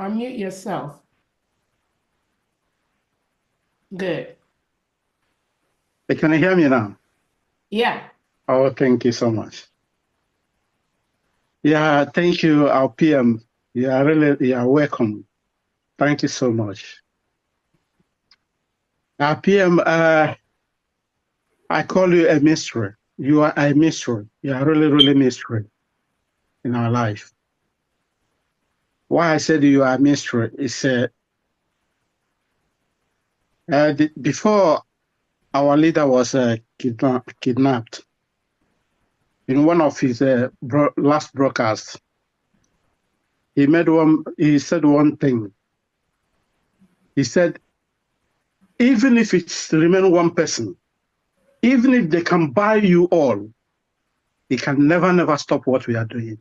Unmute yourself. Good. Can you hear me now? Yeah. Oh, thank you so much. Yeah, thank you, our PM. You are really you are welcome. Thank you so much. Our PM, uh, I call you a mystery. You are a mystery. You are really, really mystery in our life why I said you are minstrel is uh, uh, the, before our leader was uh, kidna kidnapped, in one of his uh, bro last broadcasts, he made one. He said one thing. He said, even if it's remain one person, even if they can buy you all, they can never, never stop what we are doing.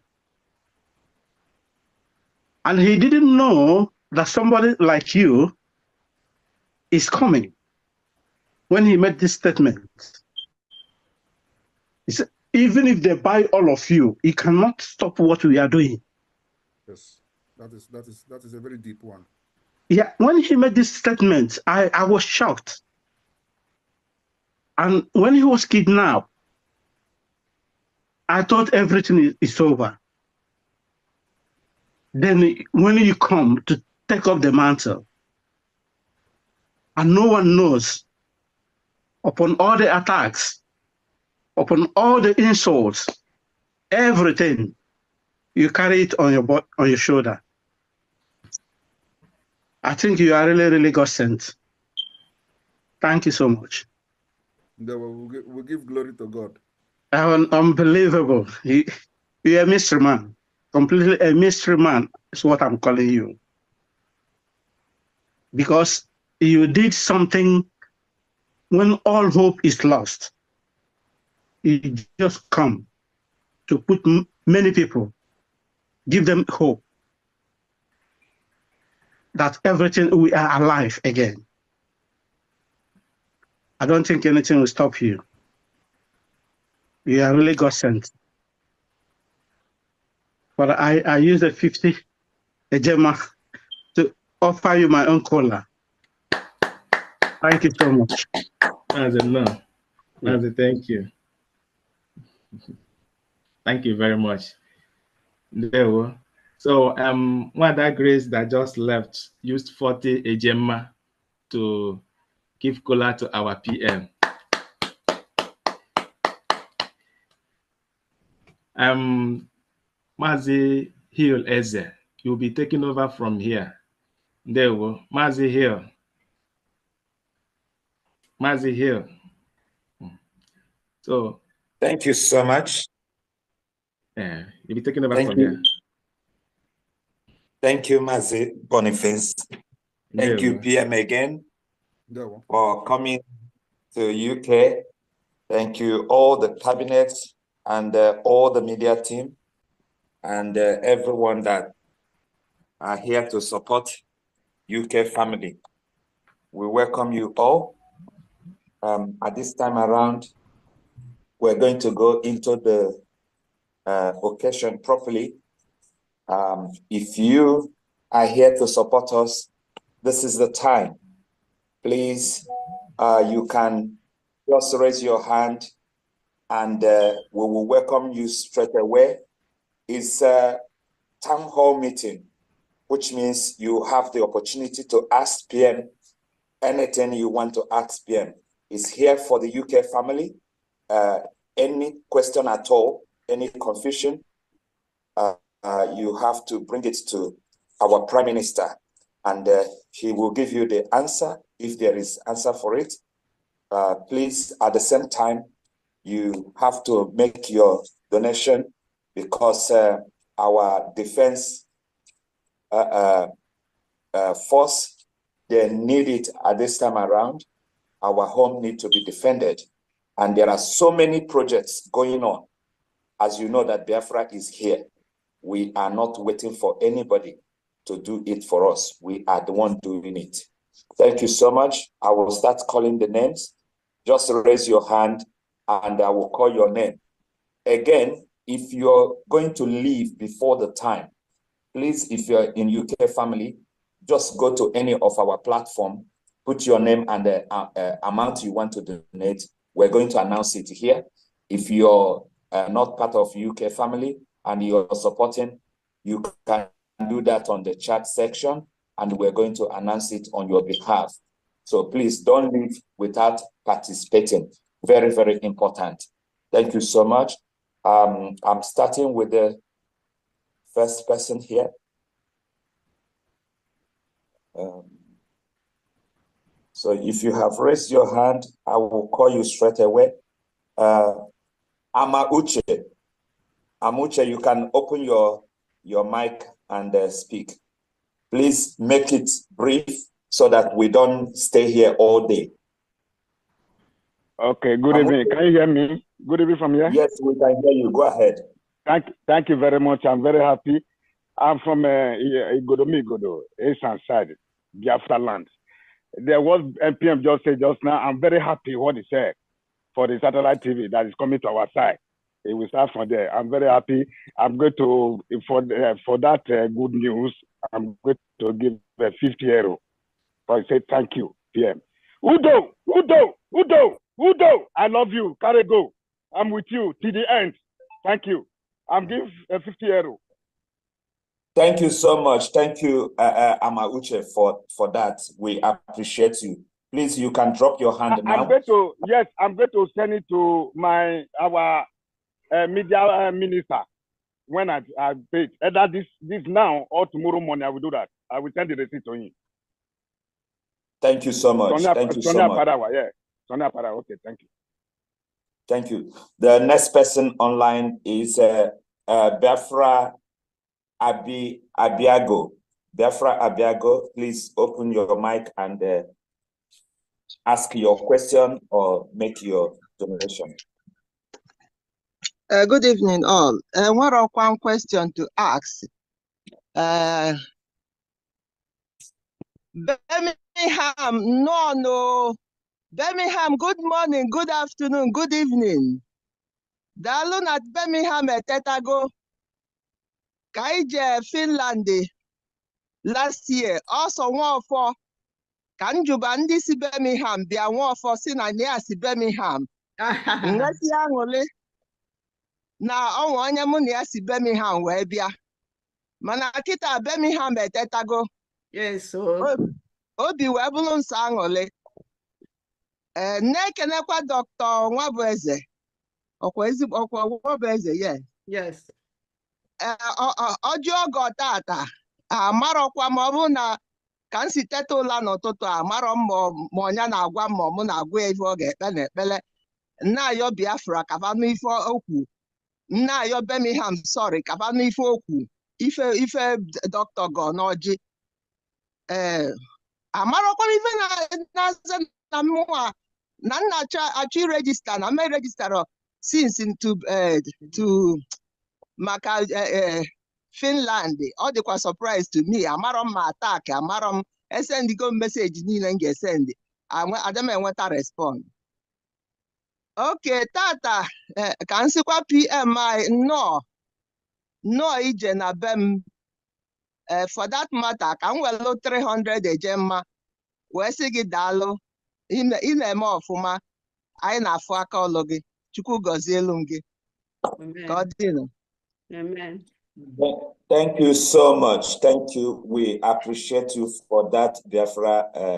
And he didn't know that somebody like you is coming when he made this statement. He said, even if they buy all of you, he cannot stop what we are doing. Yes, that is that is that is a very deep one. Yeah, when he made this statement, I, I was shocked. And when he was kidnapped, I thought everything is, is over then when you come to take up the mantle, and no one knows, upon all the attacks, upon all the insults, everything, you carry it on your on your shoulder. I think you are really, really God sent. Thank you so much. we'll, give, glory to God. unbelievable. You, you're a mystery man completely a mystery man is what I'm calling you. Because you did something when all hope is lost. You just come to put many people, give them hope that everything we are alive again. I don't think anything will stop you. You are really God sent but I, I used a 50 a Gemma to offer you my own cola. Thank you so much. As a no. As a thank you. Thank you very much. There So um one of that grace that just left used 40 a Gemma to give cola to our PM. Um Mazi Hill Eze, you'll be taking over from here. There we go. Mazi Hill. Mazi Hill. Hmm. So. Thank you so much. Yeah, you'll be taking over Thank from you. here. Thank you, Mazi Boniface. Thank you, PM, again for coming to UK. Thank you, all the cabinets and uh, all the media team and uh, everyone that are here to support UK family. We welcome you all. Um, at this time around, we're going to go into the uh, occasion properly. Um, if you are here to support us, this is the time. Please, uh, you can just raise your hand and uh, we will welcome you straight away is a town hall meeting, which means you have the opportunity to ask PM anything you want to ask PM. It's here for the UK family. Uh, any question at all, any confusion, uh, uh, you have to bring it to our Prime Minister and uh, he will give you the answer if there is answer for it. Uh, please, at the same time, you have to make your donation because uh, our defense uh, uh, force they need it at this time around. Our home need to be defended. And there are so many projects going on. As you know that Biafra is here. We are not waiting for anybody to do it for us. We are the one doing it. Thank you so much. I will start calling the names. Just raise your hand and I will call your name. Again, if you're going to leave before the time, please, if you're in UK family, just go to any of our platform, put your name and the uh, uh, amount you want to donate. We're going to announce it here. If you're uh, not part of UK family and you're supporting, you can do that on the chat section and we're going to announce it on your behalf. So please don't leave without participating. Very, very important. Thank you so much. Um, I'm starting with the first person here. Um, so if you have raised your hand, I will call you straight away. Uh, Ama Uche. Amuche, you can open your, your mic and uh, speak. Please make it brief so that we don't stay here all day. Okay, good Amuche. evening. Can you hear me? Good evening from here. Yes, we can hear you. Go ahead. Thank, thank you very much. I'm very happy. I'm from uh, Igodo, Asian side, Biafra land. There was NPM just said just now. I'm very happy what he said for the satellite TV that is coming to our side. It will start from there. I'm very happy. I'm going to for uh, for that uh, good news. I'm going to give uh, 50 euro. I say thank you, PM. Udo, Udo, Udo, Udo. I love you. Carry go. I'm with you to the end. Thank you. I'm give a 50 euro. Thank you so much. Thank you, uh, uh, Amauche, for, for that. We appreciate you. Please, you can drop your hand I, now. I'm going to, yes, I'm going to send it to my our uh, media uh, minister when I, I pay it. Either this, this now or tomorrow morning, I will do that. I will send the receipt to him. Thank you so much. Sonia, thank you Sonia so much. Parawa, yeah. Sonia Parawa, okay, thank you. Thank you. The next person online is uh, uh, Biafra Abi Abiago. Biafra Abiago, please open your mic and uh, ask your question or make your donation. Uh, good evening, all. Uh, what are one question to ask? Uh, Birmingham, no, no. Birmingham, good morning, good afternoon, good evening. Daalụ na Birmingham etetago ka anyị je Finland last year ọsọ Nwaọfọ ka njuba ndị si Birmingham bịa Nwaọfọ si na ya si Birmingham aṅụli aṅụrị na ọnwa onye mụ na ya si Birmingham wee bịa mana kịta Birmingham etetago obi wee bụrụ nsọ aṅụrị ee eh, na-ekenekwa dọkịta Nwabueze ọkwa ezigbo ọkwa Nwabueze yes eh, ọjị oge tata amarọkwa ma ọ bụ na ka m si teta ụla n'ụtụtụ amarọ m ma ọnya na-agwa m ma mụ na-agwa ya ife ọ ga-ekpe na ekpele nnaayọ Biafra kabanụ ife okwu nnaayọ Birmingham sorry kabanụ ife okwu ife ife dọkịta gọ n'ọjị ee eh, amarọkwa ife na-aza na mmụọ na nna achọ irejista na ma rejistara since to eh, to maka eh, eh, Finland ọ dịkwa surprise to me amarọ m ma atak amarọ m esendigo m meseji niile m ga-esendị ada m enweta respond oke tata ka m PMI pm anyị nnọọ nnọọ ije na be m for that matter ka m welụ 300 eje mma wee sị gị daalụ ị na-eme ọfụma anyị na-afụ aka ọlụ gị chukwu gọzie elu m gị ka ọ dịrị Thank you so much. Thank you. We appreciate you for that, Biafra uh,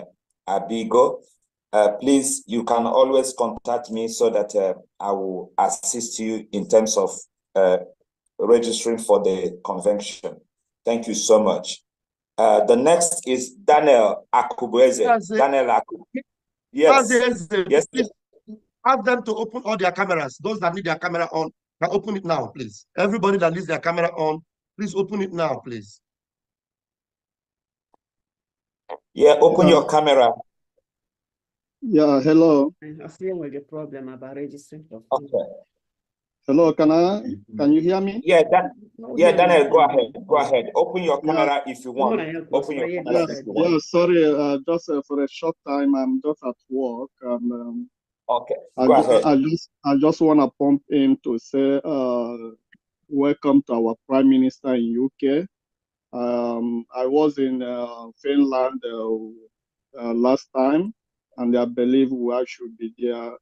Abigo. Uh, please, you can always contact me so that uh, I will assist you in terms of uh, registering for the convention. Thank you so much. Uh, the next is Daniel Akubweze. Daniel Akubweze. Yes. Says, yes. Ask them to open all their cameras. Those that need their camera on, can open it now, please. Everybody that needs their camera on, please open it now, please. Yeah, open yeah. your camera. Yeah, hello. I am dealing with a problem about registering. Okay. Hello, can I? Mm-hmm. Can you hear me? Yeah, Dan, yeah, Daniel, go ahead. Go ahead. Open your camera yeah. if you want. Open your yeah, camera. Yes, you yeah, sorry, uh, just uh, for a short time, I'm just at work. And, um, okay. Go I, just, I just, I just want to pump in to say, uh, welcome to our Prime Minister in UK. Um, I was in uh, Finland uh, uh, last time, and I believe I should be there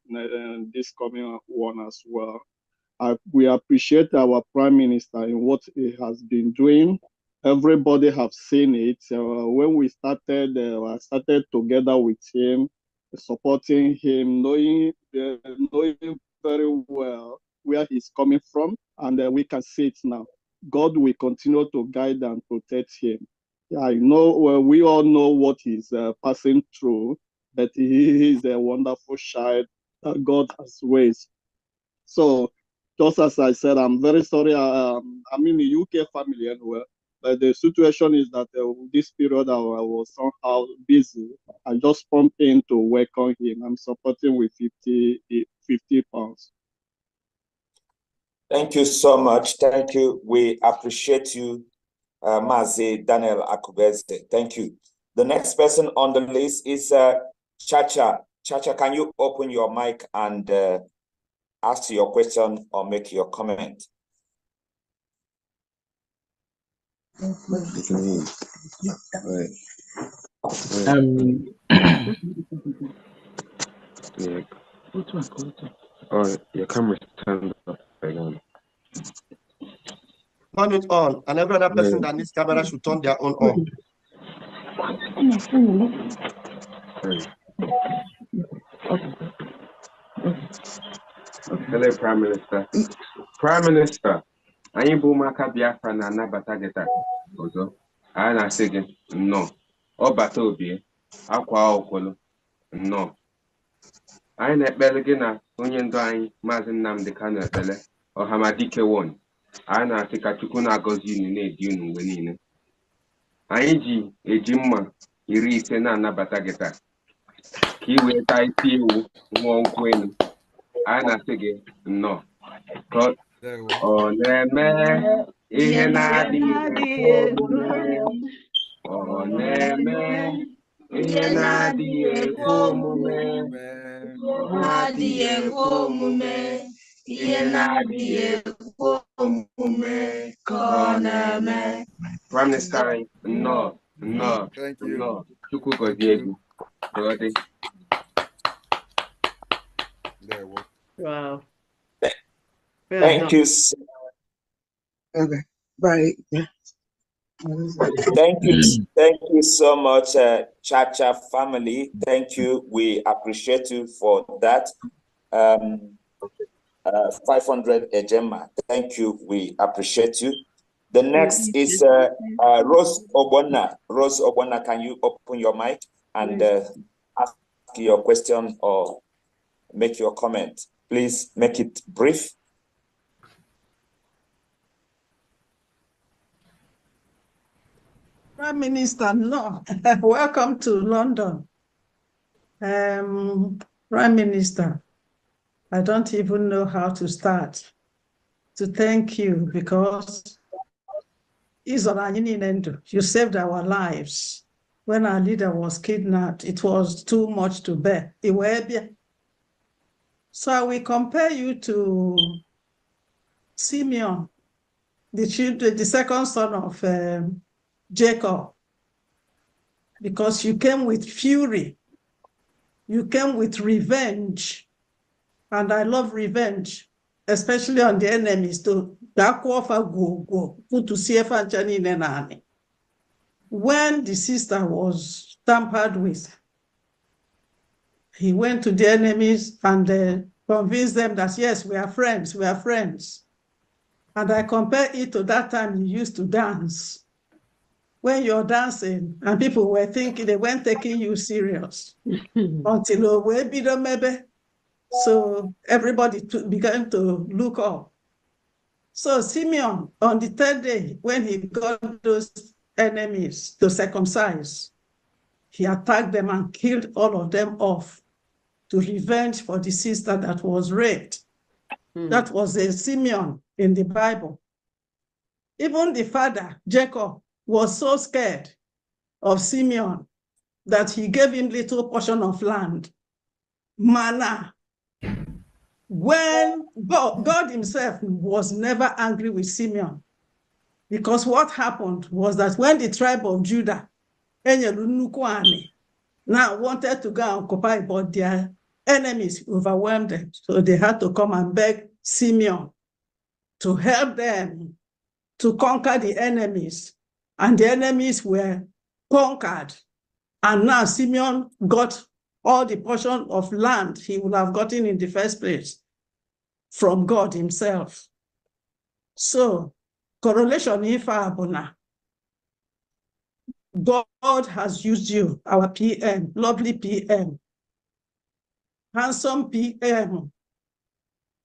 this coming one as well. I, we appreciate our prime minister in what he has been doing. Everybody have seen it. Uh, when we started, uh, started together with him, supporting him, knowing uh, knowing very well where he's coming from, and uh, we can see it now. God will continue to guide and protect him. I know well, we all know what he's uh, passing through, but he is a wonderful child. that God has raised. So just as I said, I'm very sorry. I, um, I'm in the UK family anyway, but the situation is that uh, this period I, I, was somehow busy. I just pumped in to work on him. I'm supporting with 50, 50 pounds. Thank you so much. Thank you. We appreciate you, uh, Mazi Daniel Akubeze. Thank you. The next person on the list is uh, Chacha. Chacha, can you open your mic and uh, ask your question or make your comment. Um, yeah. Or your camera turned off. again. Turn it on, and every other person yeah. that needs camera should turn their own on. okay. Hello, Prime Minister. Prime Minister, anyị bụ ụmụaka Biafra na-anabata gị taa ọzọ anyị na-asị gị nnọọ ọ bata obie akwa okolo nnọọ anyị na-ekpere gị na onye ndu anyị maazị Nnamdi Kanu ekpele ọhamadike won anyị na-asị ka Chukwu na-agọzi unu na-edi unu mgbe niile anyị ji eji mma iri ise na-anabata gị taa ka ị wee taa isi ewu nwụọ nkwụ a na-asị gị nnọọ ọ na-eme ihe na-adịghị ọ na-eme ihe na-adịghị ekwe omume na-adịghị ekwe omume ihe na-adịghị ekwe omume ka ọ na-eme prime minister no no nnọọ nnọọ chukwu gọzie egwu There, well. Wow. Thank you. Okay, Bye. Thank you. Thank you so much, uh, Cha Cha family. Thank you. We appreciate you for that. Um, uh, 500 Ejema. Thank you. We appreciate you. The next is uh, uh, Rose Obona. Rose Obona, can you open your mic and uh, ask your question or make your comment? Please make it brief. Prime Minister, no. welcome to London. Um, Prime Minister, I don't even know how to start to thank you because you saved our lives. When our leader was kidnapped, it was too much to bear. Iwebia, so I will compare you to Simeon, the children, the second son of um, Jacob, because you came with fury, you came with revenge, and I love revenge, especially on the enemies. To when the sister was tampered with, he went to the enemies and uh, convinced them that, yes, we are friends, we are friends. And I compare it to that time you used to dance. When you're dancing and people were thinking they weren't taking you serious until maybe. So everybody began to look up. So Simeon, on the third day, when he got those enemies to circumcise, he attacked them and killed all of them off to revenge for the sister that was raped. Hmm. That was a Simeon in the Bible. Even the father, Jacob, was so scared of Simeon that he gave him little portion of land, manna. When God, God himself was never angry with Simeon, because what happened was that when the tribe of Judah enyere nnukwu anị now wanted to go and occupy, but their enemies overwhelmed them. So they had to come and beg Simeon to help them to conquer the enemies. And the enemies were conquered. And now Simeon got all the portion of land he would have gotten in the first place from God himself. So, correlation if abuna God has used you, our PM, lovely PM, handsome PM.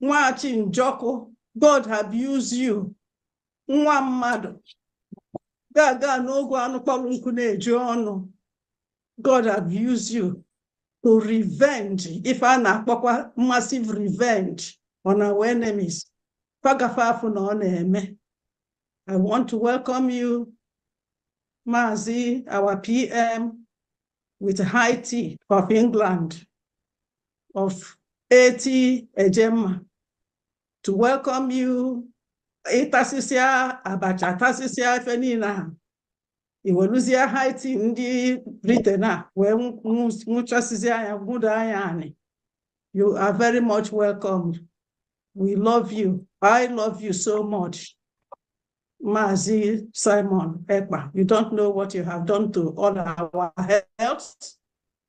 Nwachi Njoku, God have used you. Nwa mmadụ ga-aga n'oge anụ na ọnụ. God have used you to revenge if a na-akpọkwa massive revenge on our enemies. Kwagafe na ọ na-eme. I want to welcome you Mazi, our PM with Haiti of England of 80 Ejema to welcome you. Ịtasịsịa abacha tasịsịa ife niile ha iweluzie Haiti ndị Britain a ah, wee nwụchasịzịa ya you are very much welcomed we love you I love you so much Mazi Simon Ekba, you don't know what you have done to all our health,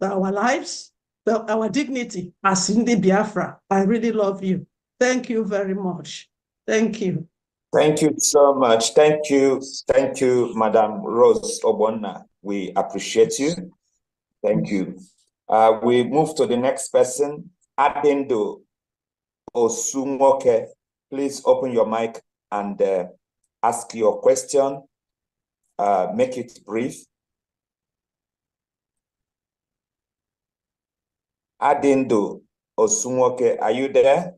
our lives, our dignity as Cindy Biafra. I really love you. Thank you very much. Thank you. Thank you so much. Thank you. Thank you, Madam Rose Obona. We appreciate you. Thank you. Uh, we move to the next person, Adendo Osumoke. Please open your mic and uh, ask your question, uh, make it brief. Adindo Osunwoke, are you there?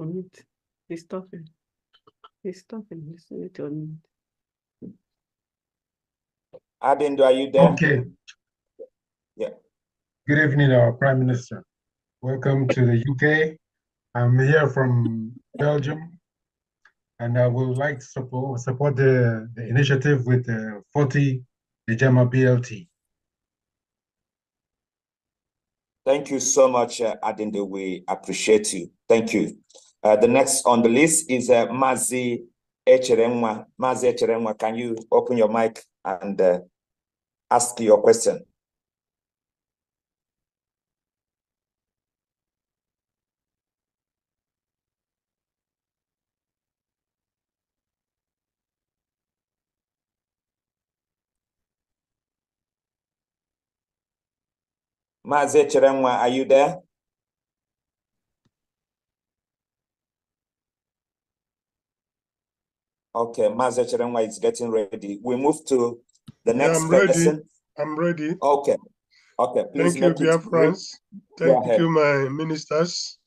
Unmute. He's talking. He's talking. Listen need to unmute. Adindo, are you there? Okay. Yeah. Good evening, our Prime Minister. Welcome to the UK. I'm here from Belgium and uh, we would like to support, support the, the initiative with uh, 40 the JAMA BLT. Thank you so much, uh, Adinde. We appreciate you. Thank you. Uh, the next on the list is uh, Mazi Echeremwa. Mazi Echeremwa, can you open your mic and uh, ask your question? Maazị Chirangwa, are you there? Okay, Maazị Chirangwa is getting ready. We move to the next yeah, I'm person. Ready. I'm ready. Okay. Okay. Please Thank you, dear friends. Thank you, my ministers.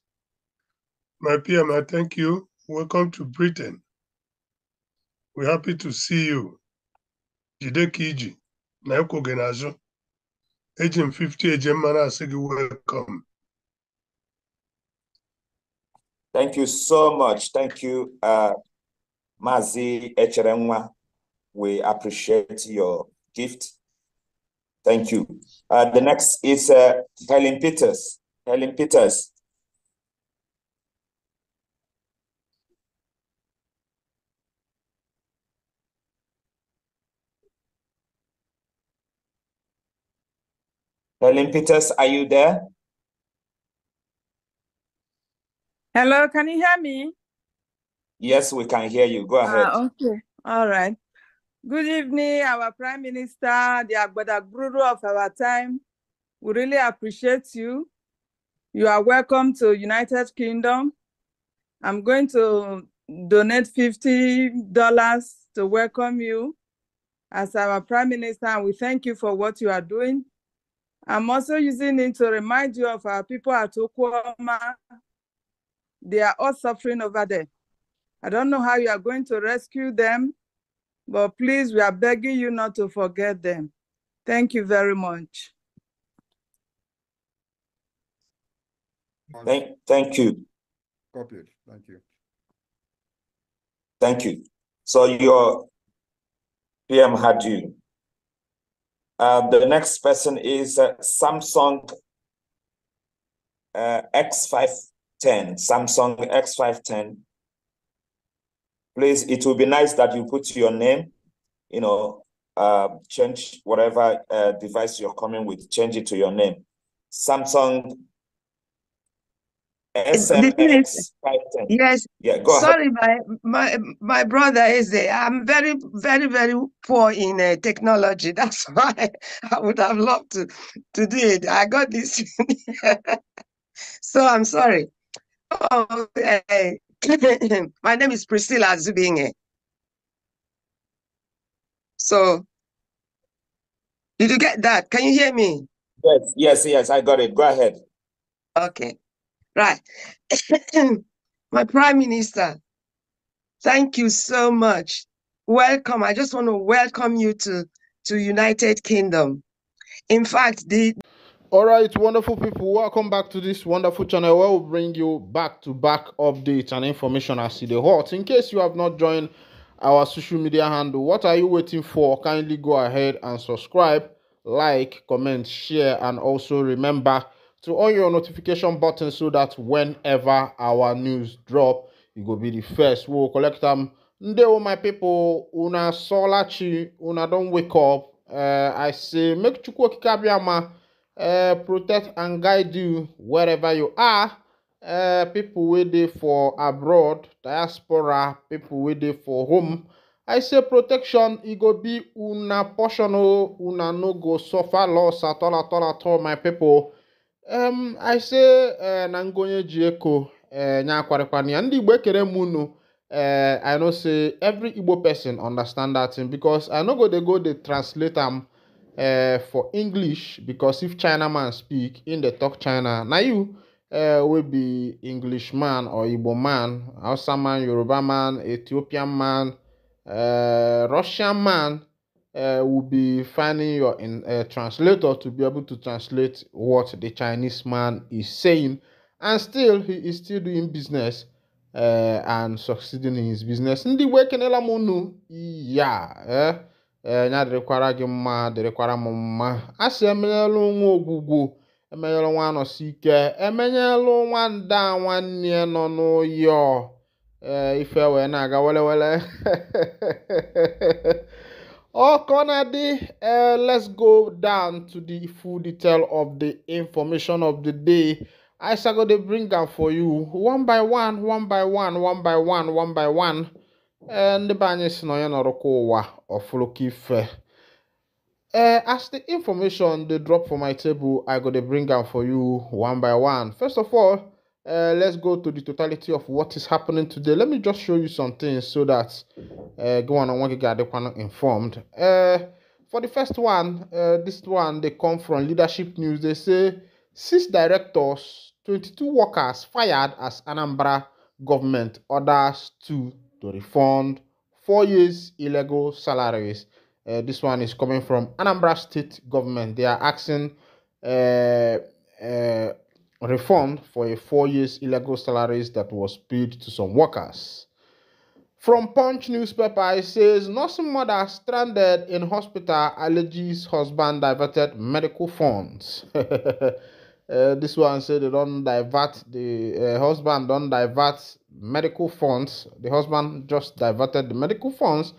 My P.M., I thank you. Welcome to Britain. We're happy to see you. Jide Kiji, Naoko Genazo. Agent 50, Agent Manasigi, welcome. Thank you so much. Thank you, uh, Mazi We appreciate your gift. Thank you. Uh, the next is uh, Helen Peters. Helen Peters, Olympitas, are you there? Hello, can you hear me? Yes, we can hear you. Go ahead. Ah, okay. All right. Good evening, our Prime Minister, the Agbadagburu of our time. We really appreciate you. You are welcome to United Kingdom. I'm going to donate $50 to welcome you as our Prime Minister, and we thank you for what you are doing. I'm also using it to remind you of our people at Okuoma. They are all suffering over there. I don't know how you are going to rescue them, but please, we are begging you not to forget them. Thank you very much. Thank, thank you. Copied. Thank you. Thank you. So your PM had you. Uh, the next person is uh, Samsung uh, X510. Samsung X510. Please, it will be nice that you put your name, you know, uh, change whatever uh, device you're coming with, change it to your name. Samsung SMS. Yes. Yeah, go Sorry, ahead. my, my my brother is there. I'm very, very, very poor in uh, technology. That's why I would have loved to, to do it. I got this. so I'm sorry. Okay. Oh, my name is Priscilla Zubinge. So, did you get that? Can you hear me? Yes, yes, yes. I got it. Go ahead. Okay. Right. My Prime Minister, thank you so much. Welcome. I just want to welcome you to, to United Kingdom. In fact, the all right, wonderful people, welcome back to this wonderful channel where we will bring you back to back updates and information as the hot. In case you have not joined our social media handle, what are you waiting for? Kindly go ahead and subscribe, like, comment, share, and also remember to on your notification button so that whenever our news drop you go be the first wey go collect am ndewo my pipo una solachi una don't wake up uh, i say make chukwu okike abiyama uh, eh, protect and guide you wherever you are uh, people wey dey for abroad diaspora people wey dey for home i say protection e go be una portion una no go suffer loss at all at all at all my people um i say uh, na ngonye ji eko uh, nya akwarịkwana ya ndị igbo ekere m unu uh, i know say every igbo person understand that thing because i no go dey go dey translate am uh, for english because if china man speak in dey talk china na you uh, wey be english man or igbo man hausa man yoruba man ethiopian man uh, russian man uh, will be finding your in, uh, translator to be able to translate what the Chinese man is saying. And still, he is still doing business uh, and succeeding in his business. Ndị wee kenela m ya eh? eh, ya dịrịkwara gị mma dịrịkwara m mma a sị emenyela nwa ogwugwu emenyela nwa anọsi ike emenyela nwanda nwanne nọ n'oyi ọ eh, ife wee na-aga welewele Oh, Conady, uh, eh, let's go down to the full detail of the information of the day. I shall go to bring them for you one by one, one by one, one by one, one by one. And eh, the banyes no yan orokowa or fulukife. Eh, as the information they drop for my table, I got to bring them for you one by one. First of all, uh, let's go to the totality of what is happening today. Let me just show you some things so that uh, go on and want to get everyone informed. Uh, for the first one, uh, this one they come from Leadership News. They say six directors, 22 workers fired as Anambra government orders to to refund four years illegal salaries. Uh, this one is coming from Anambra State government. They are asking. Uh, uh, refund for a four years illegal salaries that was paid to some workers. From Punch newspaper, it says nursing mother stranded in hospital alleges husband diverted medical funds. uh, this one said they don't divert the uh, husband don't divert medical funds. The husband just diverted the medical funds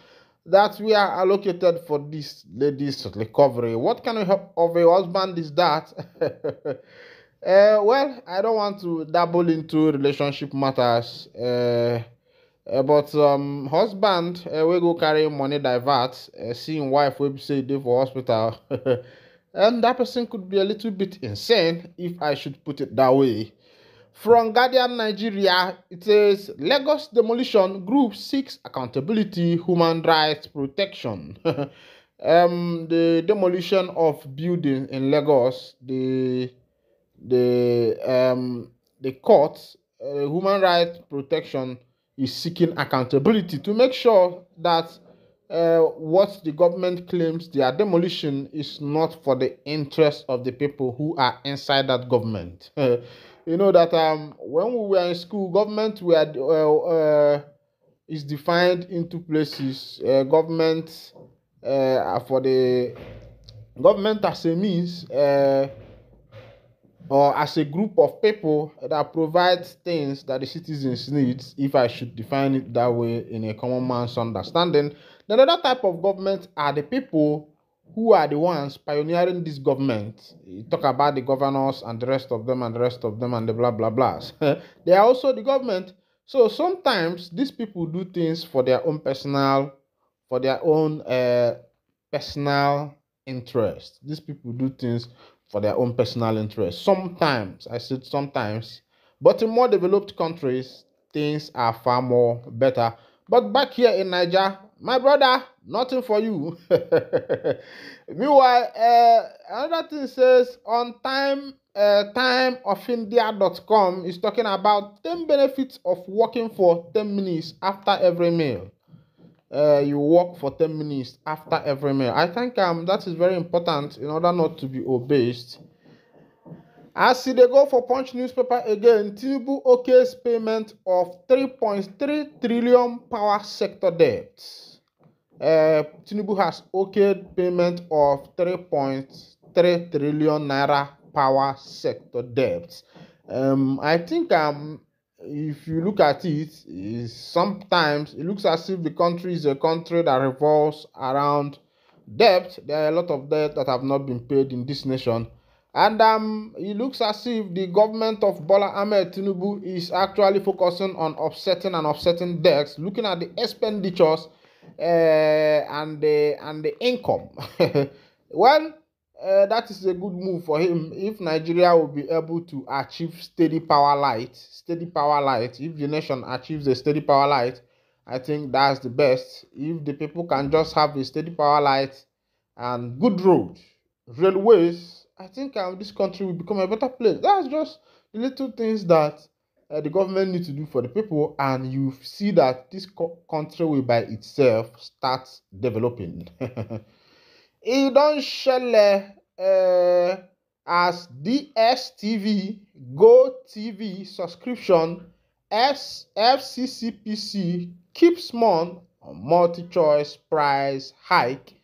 that we are allocated for this lady's recovery. What kind of, of a husband is that? Uh, well, I don't want to dabble into relationship matters, uh, uh, but um, husband uh, we go carry money divert, uh, seeing wife we say dey for hospital, and that person could be a little bit insane if I should put it that way. From Guardian Nigeria, it says Lagos demolition group seeks accountability, human rights protection. um, the demolition of building in Lagos, the the um, the court, uh, human rights protection is seeking accountability to make sure that uh, what the government claims their demolition is not for the interest of the people who are inside that government. you know that um, when we were in school, government were uh, uh, is defined into places. Uh, government uh, for the government as a means. Uh, or as a group of people that provides things that the citizens need, if I should define it that way in a common man's understanding. The other type of government are the people who are the ones pioneering this government. You talk about the governors and the rest of them and the rest of them and the blah blah blahs. they are also the government. So sometimes these people do things for their own personal, for their own uh, personal interest. These people do things for their own personal interest. Sometimes, I said sometimes, but in more developed countries, things are far more better. But back here in Niger, my brother, nothing for you. Meanwhile, uh, another thing says on time uh, timeofindia.com is talking about 10 benefits of working for 10 minutes after every meal uh, you walk for 10 minutes after every meal. I think um, that is very important in order not to be obese. As they go for Punch newspaper again, Tinubu OK's payment of 3.3 trillion power sector debt. Uh, Tinubu has okayed payment of 3.3 trillion naira power sector debt. Um, I think um, if you look at it, sometimes it looks as if the country is a country that revolves around debt. There are a lot of debt that have not been paid in this nation. And um, it looks as if the government of Bola Ahmed Tinubu is actually focusing on offsetting and offsetting debts, looking at the expenditures uh, and the and the income. well, uh, that is a good move for him if Nigeria will be able to achieve steady power light. Steady power light. If the nation achieves a steady power light, I think that's the best. If the people can just have a steady power light and good road, railways, I think um, this country will become a better place. That's just the little things that uh, the government need to do for the people, and you see that this co- country will by itself start developing. It don't shele um as dstv Go TV subscription fccpc keeps small on multi-choice price hike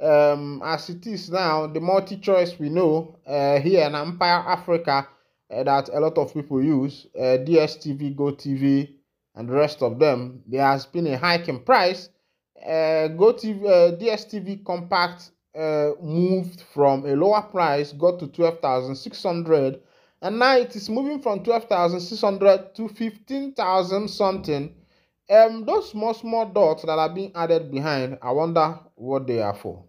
um, as it is now the multi-choice we know uh, here in empire africa uh, that a lot of people use uh, dstv gotv and the rest of them there has been a hike in price uh, gotv uh, dstv compact uh, moved from a lower price, got to 12,600, and now it is moving from 12,600 to 15,000 something. Um, those small, small dots that are being added behind, I wonder what they are for.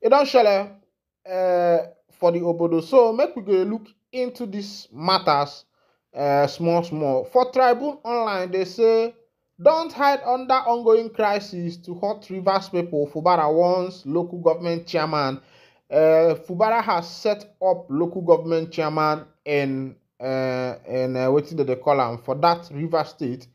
It don't share uh, for the Obodo. So, make we go look into these matters uh, small, small. For Tribune Online, they say don't hide under ongoing crisis to hurt Rivers people, Fubara wants local government chairman. Uh, Fubara has set up local government chairman in uh, in uh, what did they for that River State.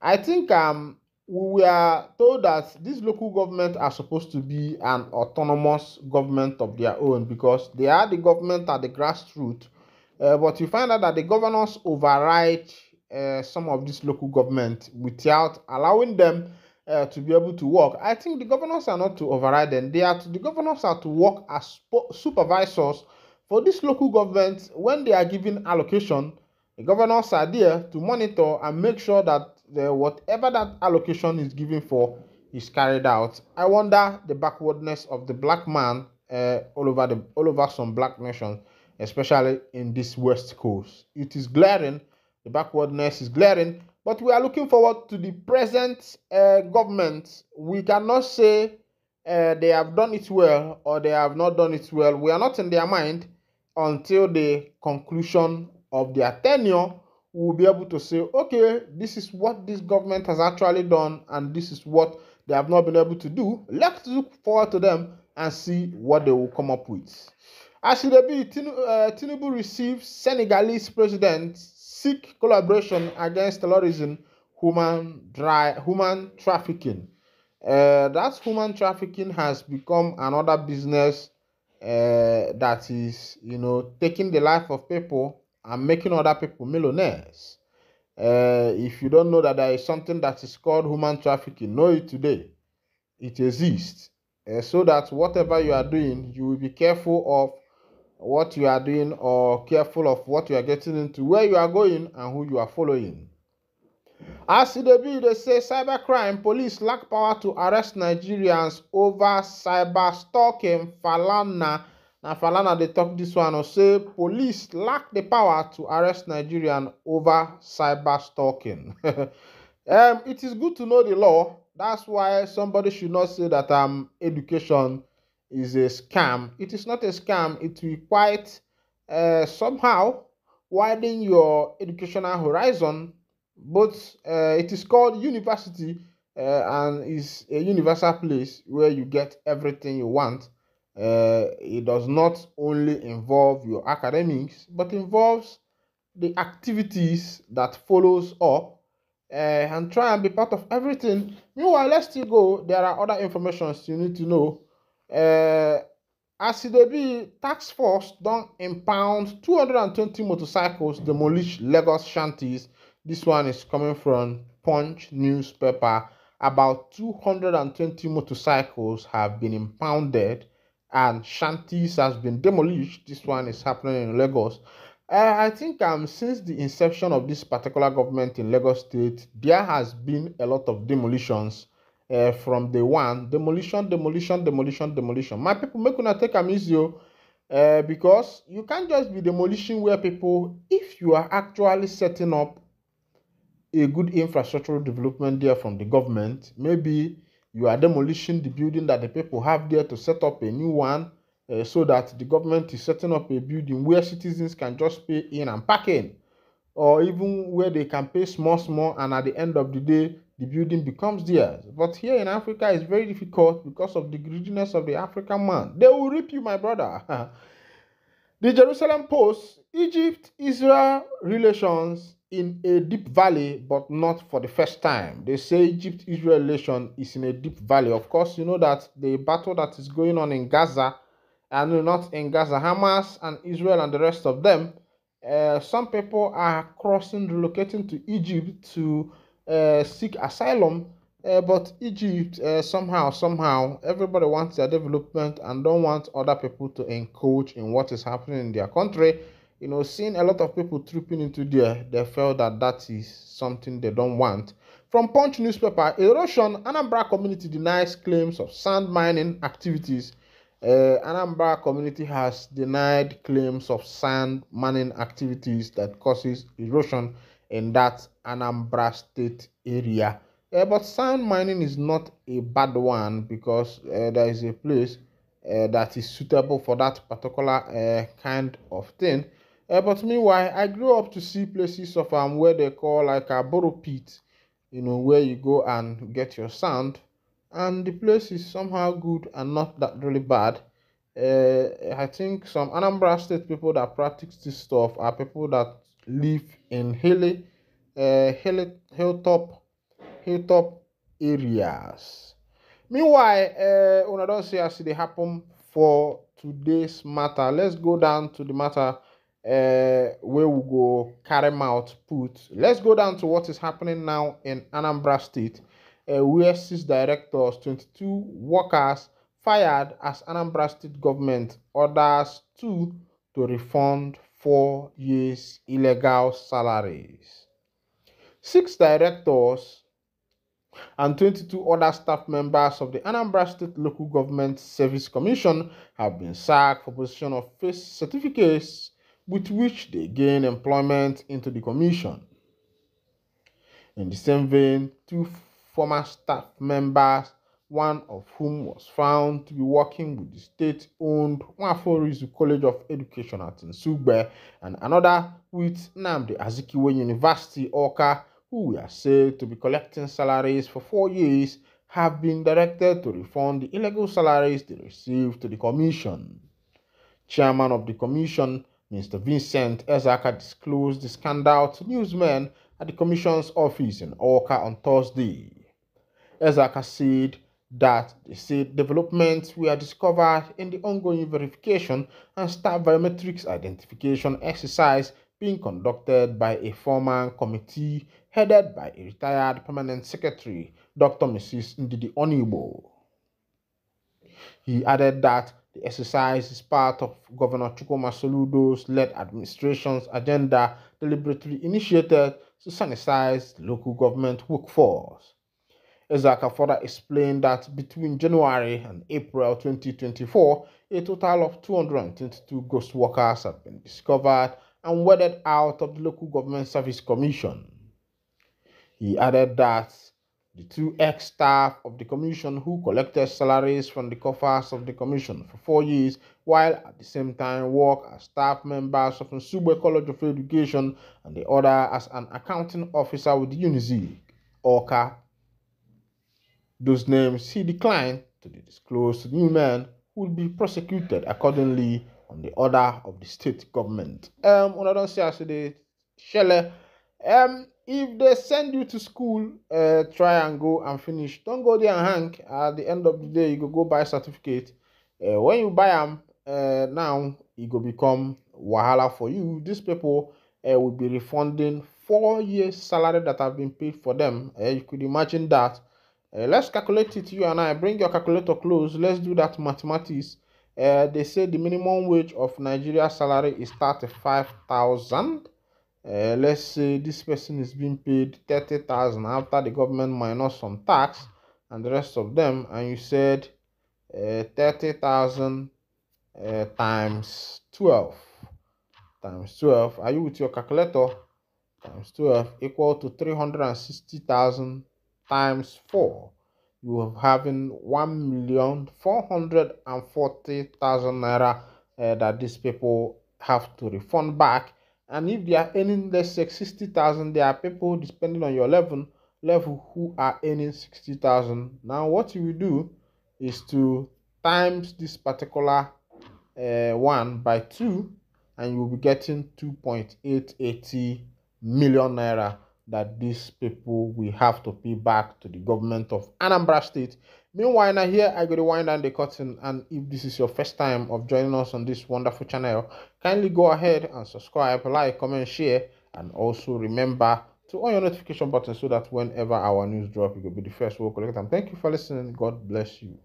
I think um we are told that these local government are supposed to be an autonomous government of their own because they are the government at the grassroots. Uh, but you find out that the governors override uh, some of these local government without allowing them uh, to be able to work. I think the governors are not to override them. They are to, the governors are to work as supervisors for these local governments when they are given allocation. The governors are there to monitor and make sure that the, whatever that allocation is given for is carried out. I wonder the backwardness of the black man uh, all over the all over some black nations, especially in this West Coast. It is glaring The backwardness is glaring, but we are looking forward to the present uh, government. We cannot say uh, they have done it well or they have not done it well. We are not in their mind until the conclusion of their tenure. We will be able to say, okay, this is what this government has actually done, and this is what they have not been able to do. Let's look forward to them and see what they will come up with. As it be, uh, Tinubu receives Senegalese President seek collaboration against terrorism, human, dry, human trafficking. Uh, that human trafficking has become another business uh, that is, you know, taking the life of people and making other people millionaires. Uh, if you don't know that there is something that is called human trafficking, know it today. It exists. Uh, so that whatever you are doing, you will be careful of what you are doing or careful of what you are getting into, where you are going, and who you are following. As the bill, they say cybercrime, police lack power to arrest Nigerians over cyber stalking. Falana, now Falana, they talk this one, or say police lack the power to arrest Nigerian over cyber stalking. um, it is good to know the law. That's why somebody should not say that um education is a scam. It is not a scam. It will quite uh, somehow widen your educational horizon. But uh, it is called university uh, and is a universal place where you get everything you want. Uh, it does not only involve your academics, but involves the activities that follows up uh, and try and be part of everything. Meanwhile, let's still go. There are other informations you need to know uh, as e be task force don impound 220 motorcycles demolish lagos shanties This one is coming from punch newspaper about 220 motorcycles have been impounded and shanties has been demolished this one is happening in lagos uh, i think um since the inception of this particular government in lagos state there has been a lot of demolitions uh, from the one demolition demolition demolition demolition my people make una take am easy o uh, eh, because you can't just be demolishing where people if you are actually setting up a good infrastructural development there from the government maybe you are demolishing the building that the people have there to set up a new one uh, so that the government is setting up a building where citizens can just pay in and park in or even where they can pay small small and at the end of the day the building becomes theirs. But here in Africa, it's very difficult because of the greediness of the African man. They will rip you, my brother. the Jerusalem Post Egypt Israel relations in a deep valley, but not for the first time. They say Egypt Israel relation is in a deep valley. Of course, you know that the battle that is going on in Gaza, and not in Gaza, Hamas and Israel and the rest of them. Uh, some people are crossing, relocating to Egypt to Uh, seek asylum. Uh, but Egypt, uh, somehow, somehow, everybody wants their development and don't want other people to encroach in what is happening in their country. You know, seeing a lot of people tripping into there, they felt that that is something they don't want. From Punch newspaper, erosion, Anambra community denies claims of sand mining activities. Uh, Anambra community has denied claims of sand mining activities that causes erosion in that Anambra State area. Uh, but sand mining is not a bad one because uh, there is a place uh, that is suitable for that particular kind of thing. but meanwhile, I grew up to see places of um, where they call like a borrow pit, you know, where you go and get your sand. And the place is somehow good and not that really bad. I think some Anambra State people that practice this stuff are people that live in hilly, uh, hilly hilltop, hilltop areas. Meanwhile, uh, una don't see as e dey happen for today's matter. Let's go down to the matter uh, where we go carry out put. Let's go down to what is happening now in Anambra State, uh, where six directors, 22 workers fired as Anambra State government orders two to refund four years illegal salaries. Six directors and 22 other staff members of the Anambra State Local Government Service Commission have been sacked for possession of fake certificates with which they gain employment into the commission. In the same vein, two former staff members one of whom was found to be working with the state owned Nwaforizu College of Education at Nsugbe, and another with Namdi Azikiwe University, Oka, who we are said to be collecting salaries for four years, have been directed to refund the illegal salaries they received to the commission. Chairman of the commission, Mr. Vincent Ezaka disclosed the scandal to newsmen at the commission's office in Oka on Thursday. Ezaka said that the said developments were discovered in the ongoing verification and staff biometrics identification exercise being conducted by a former committee headed by a retired permanent secretary, Dr. Mrs. Ndidi Onibo. He added that the exercise is part of Governor Chukuma Soludo's led administration's agenda deliberately initiated to sanitize the local government workforce. Ezaka further explained that between January and April 2024, a total of 222 ghost workers have been discovered and wedded out of the Local Government Service Commission. He added that the two ex staff of the commission who collected salaries from the coffers of the commission for four years, while at the same time work as staff members of Nsube College of Education and the other as an accounting officer with UNIZIG, Orca Those names he declined to disclose to Newman will be prosecuted accordingly on the order of the state government. Um, when I don't say I say the um, if they send you to school, uh, try and go and finish. Don't go there and hang. At the end of the day, you go go buy a certificate. Uh, when you buy them uh, now, it e go become wahala for you. These people uh, will be refunding four years' salary that have been paid for them. Uh, you could imagine that. Uh, let's calculate it, you and I. Bring your calculator close. Let's do that mathematics. Uh, they say the minimum wage of Nigeria salary is 35,000. Uh, let's say this person is being paid 30,000 after the government minus some tax and the rest of them. And you said uh, 30,000 uh, times 12 times 12. Are you with your calculator? Times 12 equal to 360,000 times 4, you have having 1,440,000 naira uh, that these people have to refund back. And if they are earning let's say 60,000, there are people depending on your level level who are earning 60,000. Now what you will do is to times this particular uh, one by two and you will be getting 2.880 million naira that these people will have to pay back to the government of Anambra State. Meanwhile, now here I go to wind down the curtain, and if this is your first time of joining us on this wonderful channel, kindly go ahead and subscribe, like, comment, share, and also remember to on your notification button so that whenever our news drop, you will be the first to we'll collect them. Thank you for listening. God bless you.